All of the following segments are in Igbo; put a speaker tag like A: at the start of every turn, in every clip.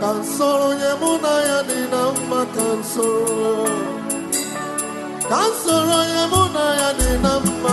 A: ka onye mụ na ya dị na mma ka nsoro onye mụ na ya dị na mma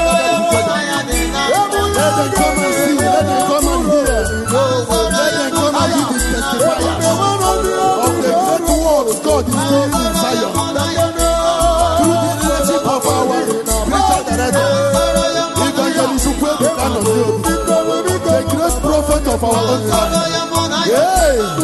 A: for our life. Yeah.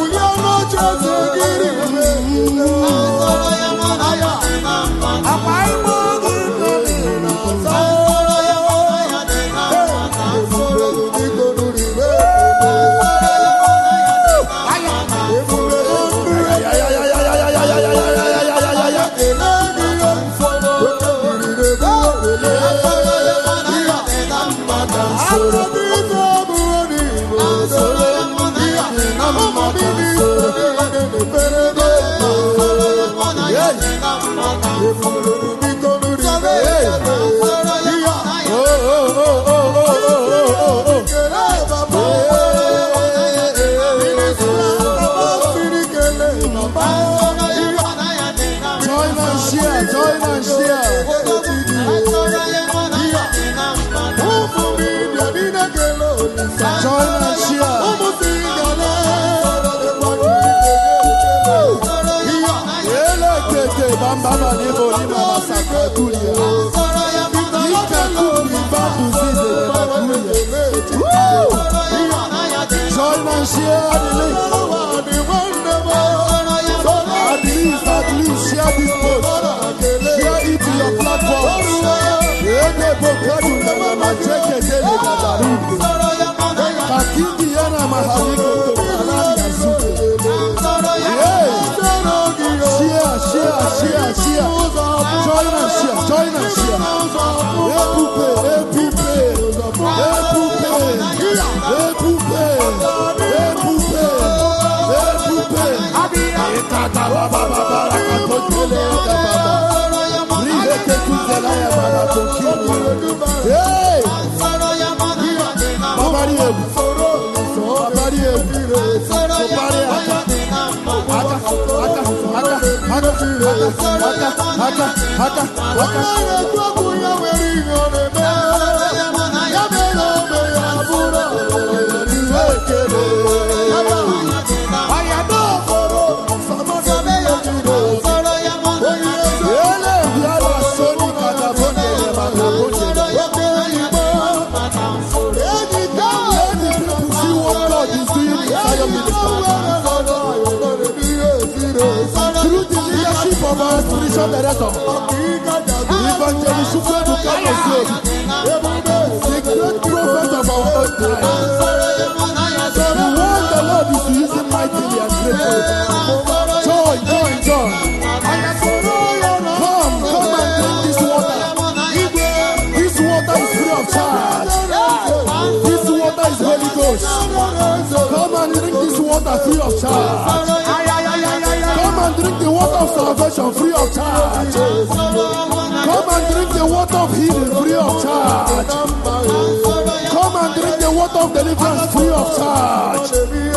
A: kata laba baba raka tokele yaka baba ribe ke kuzela ya baba tokele hey babari ebu babari ebu ya aka aka aka aka aka aka aka aka aka aka the rest of us. The evangelist should to come and save. The to prophet of The word is using mightily and greatly. Joy, joy, joy. Come, come and drink this water. This water is free of charge. This water is very Ghost. Come and drink this water free of charge. Come and drink the water of salvation free of charge. healing free of charge. Come and drink the water of deliverance free of charge.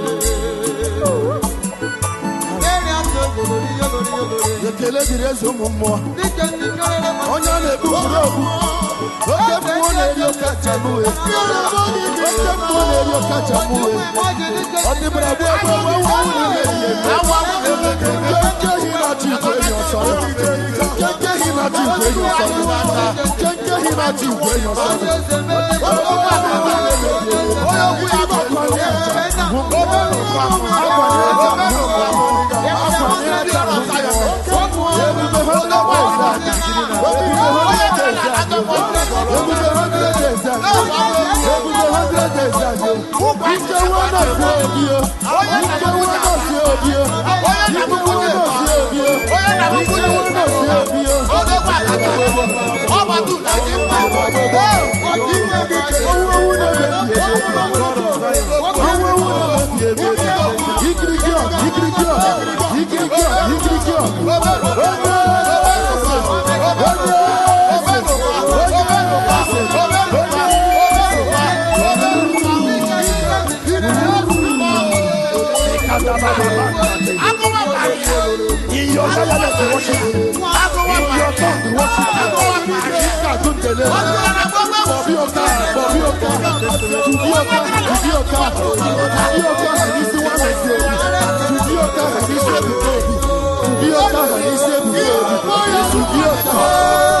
A: ekele dịrị eze ụmụ mmụọ onye a na-egbu buru ogbu oke mmụọ na-eri ọkacha oke mmụọ na-eri ọkacha ọ dịbara bụ ebe ọgba nwa na-emeghị na igwe ọsọ na igwe ọsọ na igwe ọsọ ya Ezebio nkewa na-esi obio nkewa na-esi obio nkewa na-esi obio nkewa worship you. In your tongue, worship you.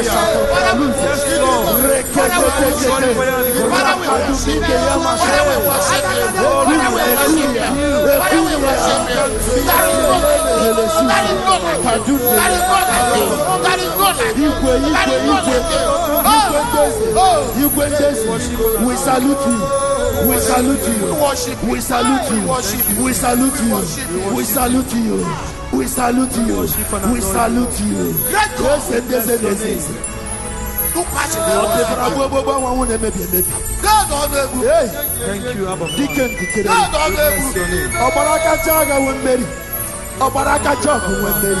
A: We salute you. We salute you. We salute you. We salute you. We salute you. We salute you. We salute you. Grace and disease. emebi emebi. ọgbara kacha agha nwe mmeri ọgbara kacha ọgụ nwe mmeri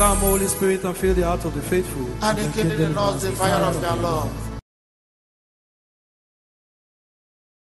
A: Come, Holy Spirit, and fill the heart of the faithful. And, and kindle in us the fire of your love.